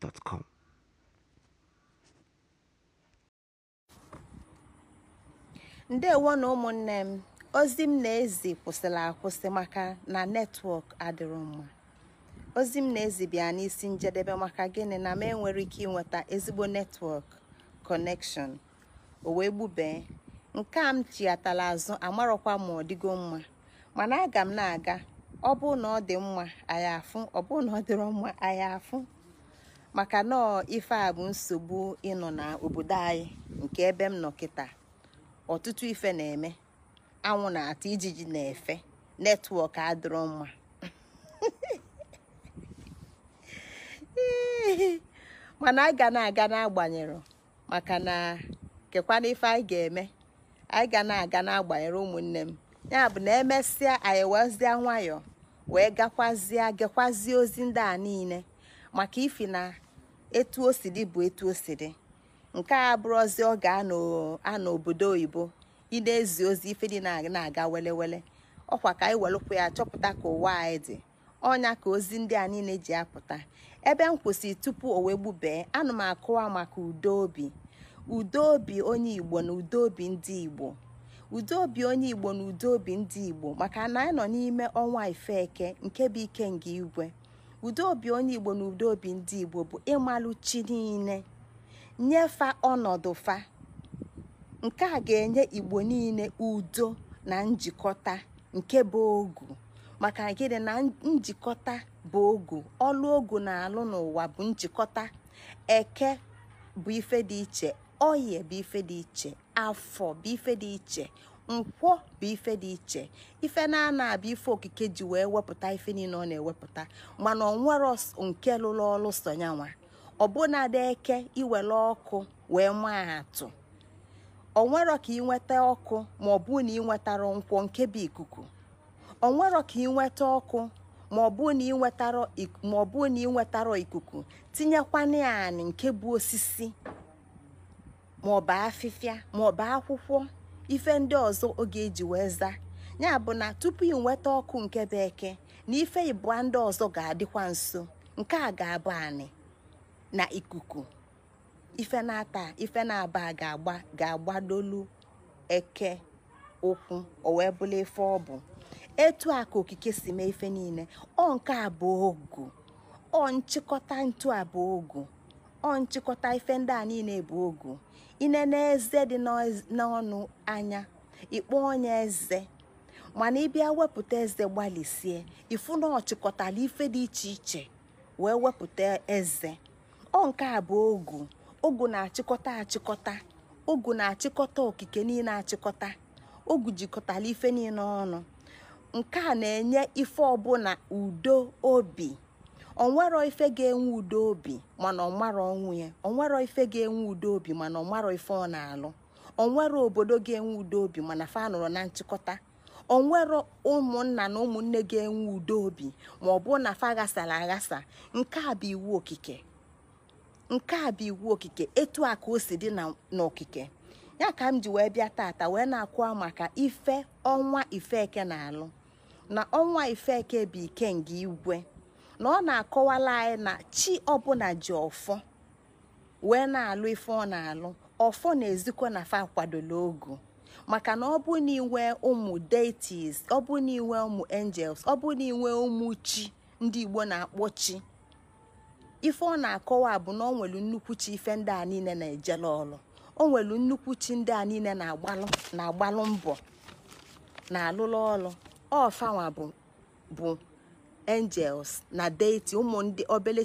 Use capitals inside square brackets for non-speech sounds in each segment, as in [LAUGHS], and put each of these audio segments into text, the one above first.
gmail.com ndewo na ụmụnne m ozi m na-ezi kwụsịrị akwụsị maka na netwọk adịrọ mma ozi m na-ezi bịa n'isi njedebe maka gịnị na m enwere ike ịnweta ezigbo netwọk kọnekshọn o wee gbubee nke a m chiatala azụ amarọkwa ma ọ dịgo mma mana aga m na-aga ọ bụ na ọ dị mma anyị afụ ọ bụ na ọ dịrọ mma anyị afụ maka nọọ ife a bụ nsogbu ịnọ na obodo anyị nke ebe m nọ kịta ọtụtụ ife na-eme anwụ na-ata ijiji na-efe netwọk adịrọ mma [LAUGHS] mana a ga na-aga n'agbanyere maka na kekwana ife anyị ga-eme anyị ga na-aga n'agbanyere ụmụnne m ya bụ na emesịa anyị wezie nwayọọ wee gakwazie ozi ndị a niile maka ifi na etu o si dị bụ etu o si dị nke a bụrụzi ọ ga-anọ obodo oyibo ị na-ezi ozi ife dị na-aga welewele ọkwa ka anyị welụkwa ya chọpụta ka ụwa anyị dị ọnya ka ozi ndị a niile ji apụta ebe m kwụsị tupu o wee gbubee anụ m akụwa maka udo obi udo obi onye igbo na udo obi ndị igbo udo obi onye igbo na udo obi ndị igbo maka na anyị nọ n'ime ọnwa ifeke nke bụ ike nga igwe udo-obi onye igbo na udo-obi ndị igbo bụ ịmalụ chi niile nyefa ọnọdụ fa nke a ga-enye igbo niile udo na njikọta nke bụ ogu maka gịnị na njikọta bụ ogu ọlụ ogu na-alụ n'ụwa bụ njikọta eke bụ ife dị iche oyi bụ ife dị iche afọ bụ ife dị iche nkwọ bụ ife dị iche ife na-ana abịa ife okike ji wee wepụta ife niile ọ na-ewepụta mana ọ nwere nke lụrụ ọrụ sonyanwa ọbụnadị eke iwere ọkụ wee maa atụ ọ nwero ka ị nweta ọkụ ma ọ bụ na ị nwetara nkwọ nke bụ ikuku ọ nwero ka ị nweta ọkụ ma ọ bụ na ị nwetara ma ọ na ị ikuku tinyekwana ya anị nke bụ osisi ma ọ bụ afịfịa ma ọ bụ akwụkwọ ife ndị ọzọ oge eji wee zaa ya bụ na tupu ị nweta ọkụ nke bekee na ife ịbụa ndị ọzọ ga-adịkwa nso nke a ga-abụ anị na ikuku ife na-ata ife na-aba ga-agba ga-agbadolu eke ụkwụ o wee bụla ife ọ bụ etu a ka okike si mee ife niile ọ nke abụọ ogu ọ nchịkọta ntu abụọ ogu ọ nchịkọta ife ndị a niile bụ ogu inene eze dị n'ọnụ anya ịkpọ onye eze mana ịbịa wepụta eze gbalịsie ifu na ọchịkọtala ife dị iche iche wee wepụta eze ọ nke a bụ ogu ogu na-achịkọta achịkọta ogu na-achịkọta okike niile achịkọta ogu jikọtala ife niile ọnụ nke a na-enye ife ọbụla udo obi onwero ife ga-enwe udo obi mana ọnwara ọnwụ ya onwero ife ga-enwe udo obi mana ọnwara ife ọ na-alụ onwero obodo ga-enwe udo obi mana fa nụrụ na nchịkọta onwero ụmụnna na ụmụnne ga-enwe udo obi ma ọ bụrụ na fa aghasara aghasa nke a bụ iwu okike nke a bụ iwu okike etu a ka o si dị n'okike ya ka m ji wee bịa tata wee na-akwa maka ife ọnwa ifeke na-alụ na ọnwa ifeke bụ ikenga igwe na ọ na-akọwala anyị na chi ọbụla ji ọfọ wee na-alụ ife ọ na-alụ ọfọ na-ezikwa na fa kwadola ogu maka na ọ bụ na inwe ụmụ deities ọ bụ na inwe ụmụ angels ọ bụ na inwe ụmụ chi ndị Igbo na-akpọ chi ife ọ na-akọwa bụ na ọ nwere nnukwu chi ife ndị a niile na-ejela ọlụ o nwere nnukwu chi ndị a niile na-agbalụ mbọ na-alụlụ ọlụ ọfanwa bụ angels na deity ụmụ ndị obele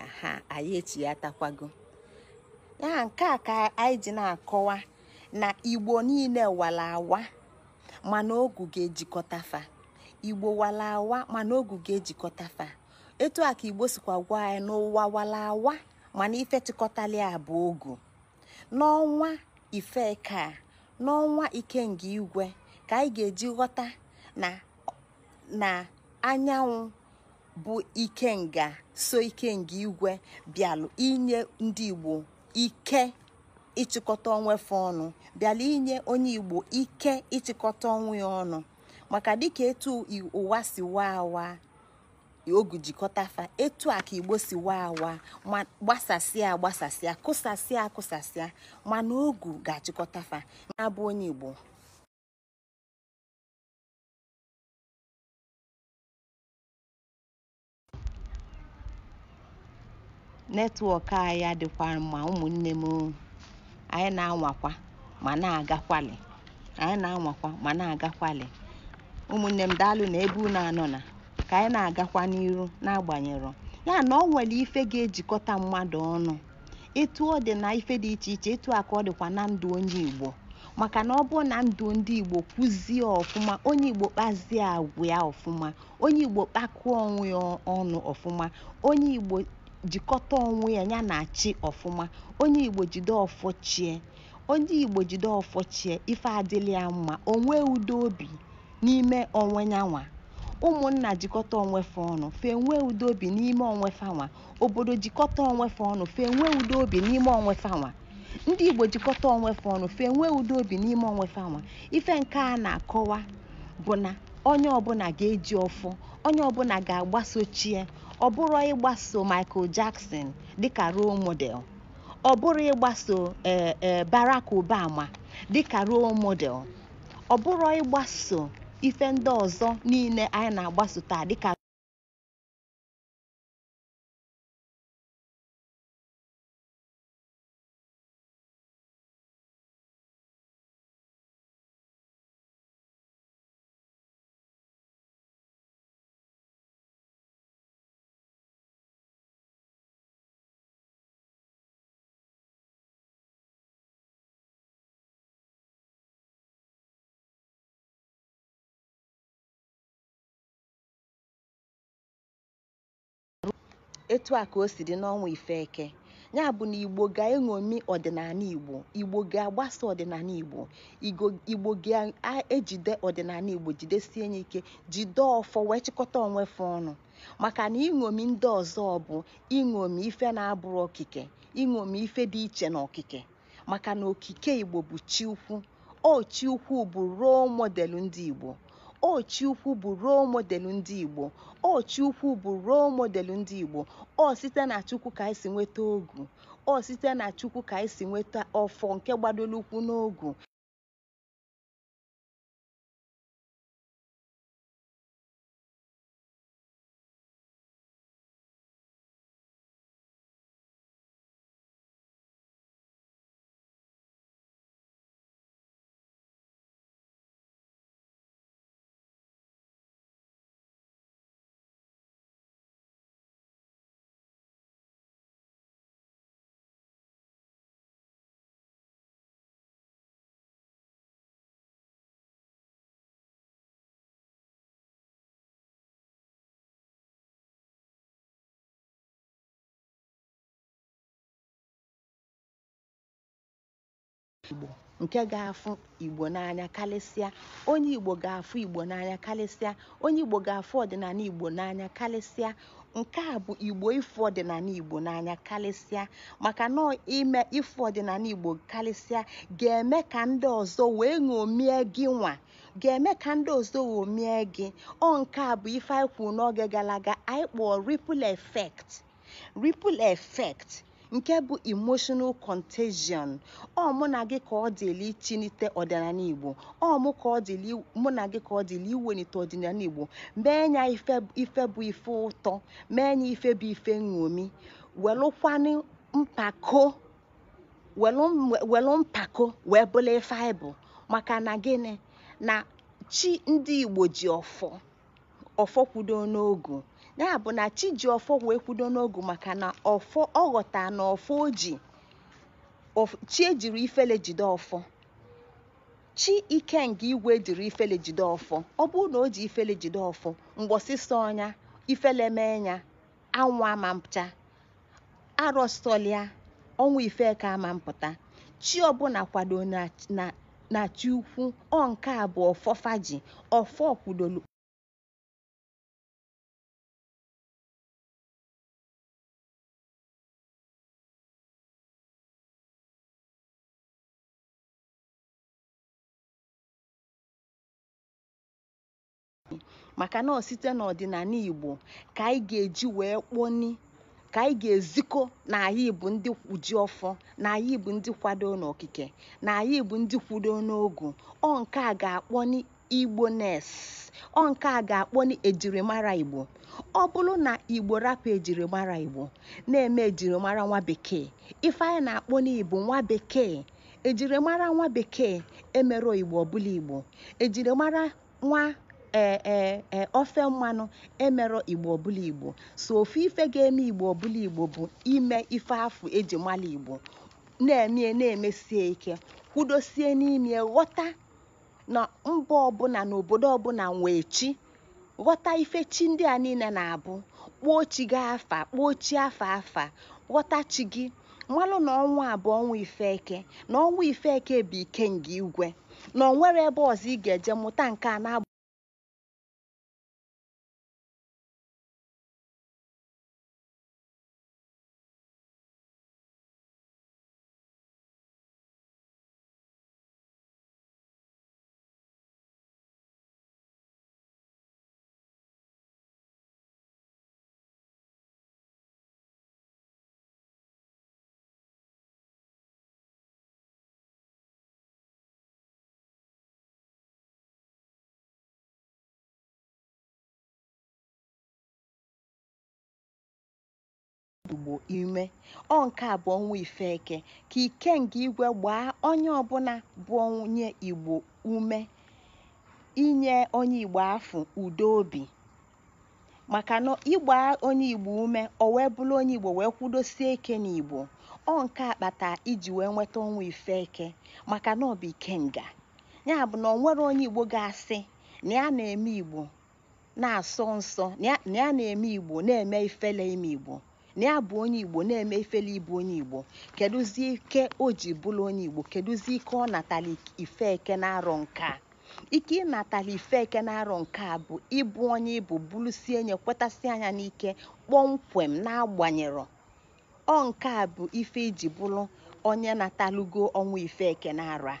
aha anyị echi ya nke a ka anyị ji na-akọwa na igbo niile wala awa mana ogu ga-ejikọta fa igbo wala awa mana ogu ga-ejikọta fa etu a ka igbo sikwa gwa anyị n'ụwa wala awa mana ife chịkọtali bụ ogu n'ọnwa ifeka n'ọnwa nga igwe ka anyị ga-eji ghọta na anyanwụ bụ ike nga so ikenga igwe bịalụ inye ndị igbo ike ịchịkọta onwefe ọnụ bịalụ inye onye igbo ike ịchịkọta onwe ya ọnụ maka dịka etu ụwa si waa awa ogu jikọtafa etu a ka igbo si waa awa gbasasịa gbasasịa agbasasịa kụsasịa akụsasịa mana ogu ga fa na-abụ onye igbo netwọk anyị adịkwa mma ụmụnne m anyị na-anwakwa ma na agakwali anyị na-anwakwa ma na agakwali ụmụnne m daalụ na ebe unu anọ na ka anyị na-agakwa n'iru n'agbanyeghị ya na ọ nwere ife ga-ejikọta mmadụ ọnụ etu ọ dị na ife dị iche iche etu a ka ọ dịkwa na ndụ onye Igbo maka na ọ bụ na ndụ ndị Igbo kwụzie ọfụma onye Igbo kpazie agwa ya ọfụma onye Igbo kpakụọ onwe ya ọnụ ọfụma onye Igbo jikọta onwe ya ya na achị ọfụma onye igbo jide ọfọ chie onye igbo jide ọfọ chie ife adịla ya mma onwe udo obi n'ime onwe nyanwa ụmụnna jikọta onwefe ọnụ fee nwee udo obi n'ime onwefe anwa obodo jikọta onwefe ọnụ fee nwee udo obi n'ime onwefe anwa ndị igbo jikọta fe ọnụ fe nwee udo obi n'ime onwefe anwa ife nke a na-akọwa bụ na onye ọbụla ga-eji ọfọ onye ọbụla ga-agbasochie ọ bụrụ ịgbaso Michael Jackson dịka role model ọ bụrụ ịgbaso e, e, Barack Obama dịka role model ọ bụrụ ịgbaso ife ndị ọzọ niile anyị na-agbaso taa dịka etu a ka o si dị n'ọnwa Ifeke ya bụ na Igbo ga-eṅomi ọdịnala Igbo Igbo ga-agbasa ọdịnala Igbo Igbo ga-ejide ọdịnala Igbo jidesie ya ike jide ọfọ wee chịkọta onwefe ọnụ maka na iṅomi ndị ọzọ bụ iṅomi ife na-abụrụ okike iṅomi ife dị iche na okike maka na okike Igbo bụ chi ukwu o chi ukwu bụ ruo model ndị Igbo Ochiukwu bụ role model ndị Igbo. Ochiukwu bụ role model ndị Igbo. Ọ site na Chukwu ka anyị si nweta ogu. Ọ site na Chukwu ka anyị si nweta ọfọ nke gbadoro n'ogu. Igbo nke ga-afụ Igbo n'anya karịsịa onye Igbo ga-afụ Igbo n'anya kalịsịa onye Igbo ga-afụ ọdịnala Igbo n'anya kalịsịa nke a bụ Igbo ịfụ ọdịnala Igbo n'anya karịsịa maka na ime ịfụ ọdịnala Igbo kalịsịa ga-eme ka ndị ọzọ wee ṅomie gị nwa ga-eme ka ndị ọzọ ṅomie gị ọ nke a bụ ife anyị kwuru n'oge gara aga anyị kpọọ ripple effect ripple effect nke bụ emotional contagion ọ mụ na gị ka ọ dịli chinite ọdịnala igbo ọ mụ ka ọ dịli mụ na gị ka ọ iwenite ọdịnala igbo mee ya ife bụ ife ụtọ mee ya ife bụ ife nṅomi welụkwanụ mpako welụ mpako wee bụla ife anyị maka na gịnị na chi ndị igbo ji ọfọ ọfọ kwudo n'ogu ya bụ na chi ọfọ wee kwudo n'ogu maka na ọghọta na ọfọ ji chi ejiri ifele jide ọfọ chi ike nke igwe jiri ifele jide ọfọ ọ bụrụ na o ji ifele jide ọfọ mgbọsịsọ ọnya ifele mee ya anwụ ama mpụta arọsọlịa ọnwa ife ka ama mpụta chi ọbụla kwado na na ukwu ọ nke a bụ ọfọ kwudolu maka na ọ site n'ọdịnala Igbo ka anyị ga-eji wee kpọni ka anyị ga-ezikọ na anyị bụ ndị kwuji ọfọ na anyị bụ ndị kwado n'okike na anyị bụ ndị kwudo n'ogu ọ nke a ga-akpọni Igbo nes ọ nke a ga-akpọni ejirimara Igbo ọ bụrụ na Igbo rapụ ejirimara Igbo na-eme ejirimara nwa bekee ife anyị na-akpọ n'Igbo nwa bekee ejirimara nwa bekee emere Igbo ọbụla Igbo ejirimara nwa E, e, e, ofe mmanụ emerọ igbo ọbụla igbo so ofe ife ga-eme igbo ọbụla igbo bụ ime ife afụ eji mala igbo na-eme na-emesie ike kwudosie n'ime ghọta na mba ọbụla na obodo ọbụla nwee chi ghọta ife chi ndị a niile na-abụ kpọọ chi gị afa kpọọ chi afa afa ghọta chi gị mmalụ na ọnwa abụọ bụ ife eke na ọnwa ifeke bụ ike nke igwe na onwere ebe ọzọ ị ga-eje mụta nke a na-abụ igbo ime ọ nke a bụ ọnwa ifeke ka ikenga igwe gbaa onye ọbụla bụ onye igbo ume inye onye igbo afụ udo obi maka na ịgba onye igbo ume o wee bụrụ onye igbo wee kwudosie ike n'igbo ọ nke a kpata iji wee nweta ọnwa ifeke maka na ọ bụ ikenga ya bụ na ọ nwere onye igbo ga-asị na ya na-eme igbo na-asọ nsọ na ya na-eme igbo na-eme ifele ime igbo na bụ onye igbo na-eme ifele ịbụ onye igbo kedụzie ike o ji bụrụ onye igbo kedụzie ike ọ natala ife eke na-arọ nke a ike ịnatala ife eke na-arọ nke a bụ ịbụ onye ịbụ bụrụsie nye kwetasị anya n'ike kpọmkwem na-agbanyerọ ọ nke a bụ ife iji e bụrụ onye natalụgo ọnwa ife eke na-arọ a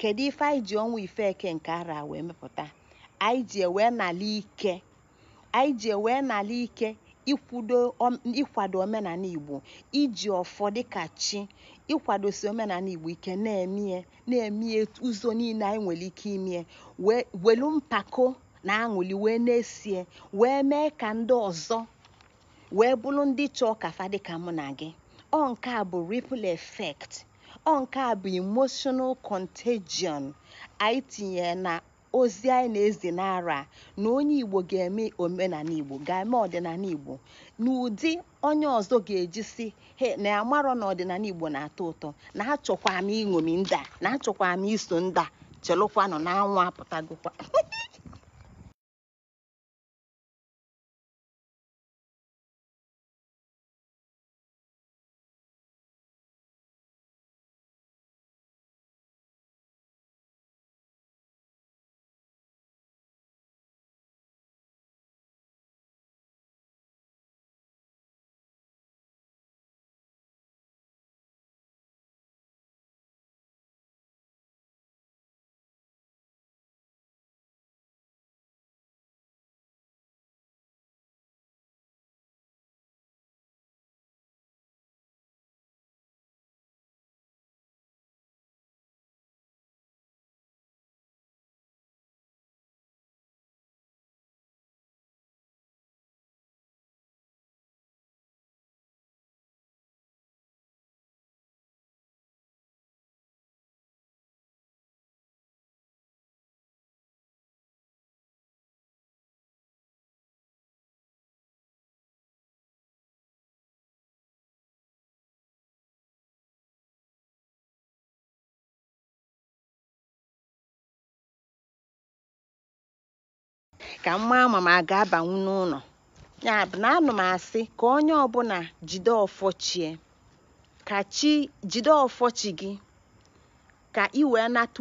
kedu ife anyị ji ọnwa ife eke nke ara wee mepụta anyị ji ewee nala ike anyị ji ewee nala ike ikwudo ịkwado omenala Igbo iji ọfọ dịka chi ịkwadosi omenala Igbo ike na-emie na-emie ụzọ niile anyị nwere ike imie welu mpako na aṅụli wee na-esie wee mee ka ndị ọzọ wee bụrụ ndị chọọ kafa dịka mụ na gị ọ nke bụ ripple effect ọ nke bụ emotional contagion anyị tinyere na ozi anyị na-ezi n'ara na onye Igbo ga-eme omenala Igbo ga-eme ọdịnala Igbo n'ụdị onye ọzọ ga-eji si he na amarọ na ọdịnala Igbo na-atọ ụtọ na achọkwa m iṅomi ndị a na achọkwa m iso ndị a chelụkwanụ na anwụ apụtagokwa [LAUGHS] ka m maa ma a ga-abanwu n'ụlọ ya na anụ m asị ka onye ọbụla jide ọfọchie ka chi jide ọfọchi gị ka ị wee nata